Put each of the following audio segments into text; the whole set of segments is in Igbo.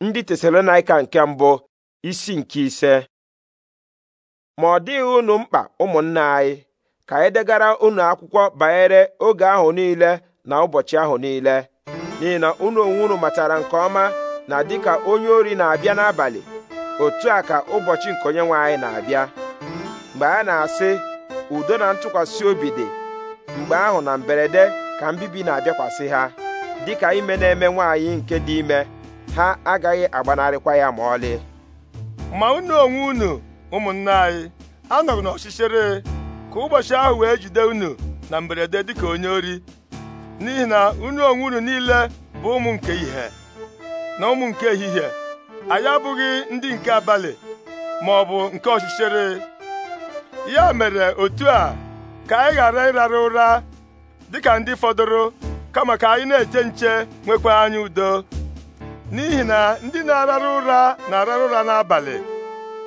ndị tesalonaika nke mbụ isi nke ise ma ọ dịghị unu mkpa ụmụnna anyị ka anyị degara unu akwụkwọ banyere oge ahụ niile na ụbọchị ahụ niile n'ihi na unu onwe unu matara nke ọma na dịka onye ori na-abịa n'abalị otu a ka ụbọchị nke onye nwe anyị na-abịa mgbe a na-asị udo na ntụkwasị obi dị mgbe ahụ na mberede ka mbibi na-abịakwasị ha dịka ime na-eme nwaanyị nke dị ime ha agaghị agbanarịkwa ya ma ọlị ma unu onwe unu ụmụnna anyị anọrọ n'ọchịchịrị ka ụbọchị ahụ wee jide unu na mberede dịka onye ori n'ihi na unu onwe unu niile bụ ụmụ nke ihe na ụmụ nke ehihie anyị abụghị ndị nke abalị ma ọ bụ nke ọchịchịrị ya mere otu a ka anyị ghara ịrara ụra dịka ndị fọdụrụ kama ka anyị na-eche nche nwekwa anyị udo n'ihi na ndị na-arara ụra na-arara ụra n'abalị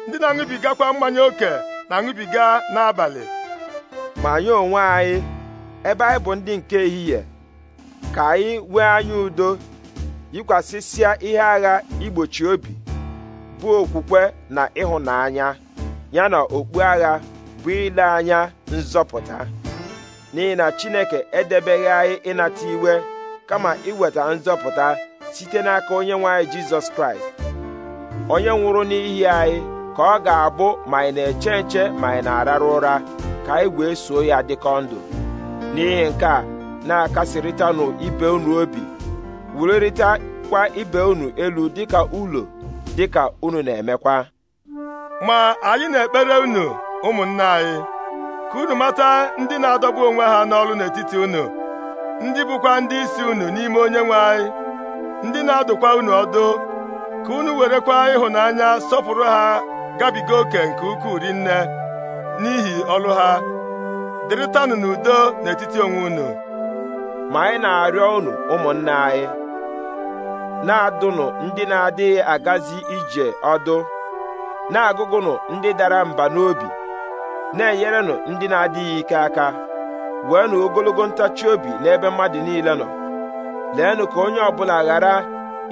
ndị na-aṅụbigakwa mmanya oke na-aṅụbiga n'abalị ma anyị onwe anyị ebe anyị bụ ndị nke ehihie ka anyị nwee anya udo yikwasịsịa ihe agha igbochi obi bụ okwukwe na ịhụnanya ya na okpu agha bụ ile anya nzọpụta n'ihi na Chineke edebeghị anyị ịnata iwe kama iweta nzọpụta site n'aka onye nwe anyị jizọs kraịst onye nwụrụ n'ihi anyị ka ọ ga-abụ ma anyị na-eche nche ma anyị na-arara ụra ka anyị wee soo ya dịkọ ndụ n'ihi nke a na-akasịrịtanụ ibe unu obi wulirịtakwa ibe unu elu dịka ụlọ dịka unu na-emekwa ma anyị na-ekpere unu ụmụnna anyị ka unu mata ndị na-adọgbu onwe ha n'ọrụ n'etiti unu ndị bụkwa ndị isi unu n'ime onye nwe anyị ndị na-adụkwa unu ọdụ ka unu werekwa ịhụnanya sọpụrụ ha gabiga oke nke ukwuu rinne n'ihi ọlụ ha dịrịtanụ n'udo n'etiti onwe unu ma anyị na-arịọ unu ụmụnne anyị na-adụnụ ndị na-adịghị agazi ije ọdụ na-agụgụnụ ndị dara mba n'obi na-enyerenụ ndị na-adịghị ike aka nụ ogologo ntachi obi n'ebe mmadụ niile nọ leenụ ka onye ọbụla ghara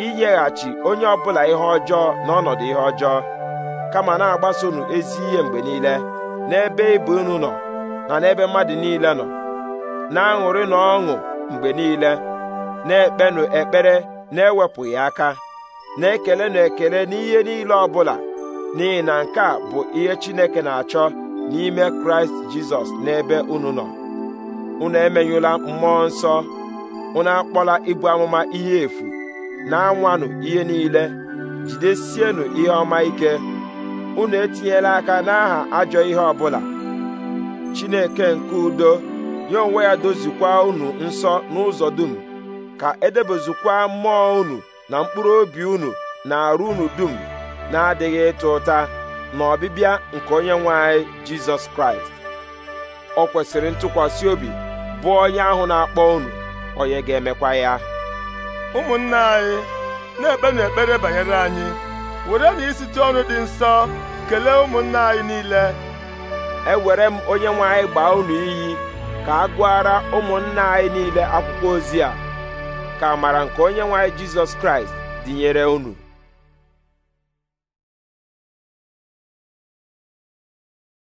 inyeghachi onye ọbụla ihe ọjọọ n'ọnọdụ ihe ọjọọ kama na-agbasonu ezi ihe mgbe niile n'ebe ibu unu nọ na n'ebe mmadụ niile nọ na-aṅụrị na ọṅụ mgbe niile na-ekpenụ ekpere na-ewepụghị aka na-ekelenụ ekele n'ihe niile ọbụla n'ihi na nke a bụ ihe Chineke na-achọ n'ime Kraịst Jizọs n'ebe unu nọ unu emenyụla mmụọ nsọ unu akpọla ibu amụma ihe efu na-anwanụ ihe niile jidesienụ ihe ọma ike unu etinyela aka n'aha ajọ ihe ọbụla Chineke nke udo ya onwe ya dozikwa unu nsọ n'ụzọ dum ka edebezikwa mmụọ unu na mkpụrụ obi unu na arụ unu dum na-adịghị ịta ụta na ọbịbịa nke onye nwe anyị Jizọs Kraịst ọ kwesịrị ntụkwasị obi bụ onye ahụ na-akpọ unu onye ga-emekwa ya ụmụnna anyị na-ekpenụ ekpere banyere anyị were na isite ọnụ dị nsọ kelee ụmụnna anyị niile ewere m onye nwe anyị gbaa unu iyi ka a gụara ụmụnna anyị niile akwụkwọ ozi a ka amara nke onye nwe anyị jizọs kraịst dịnyere unu